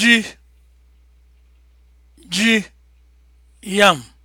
ji ji yam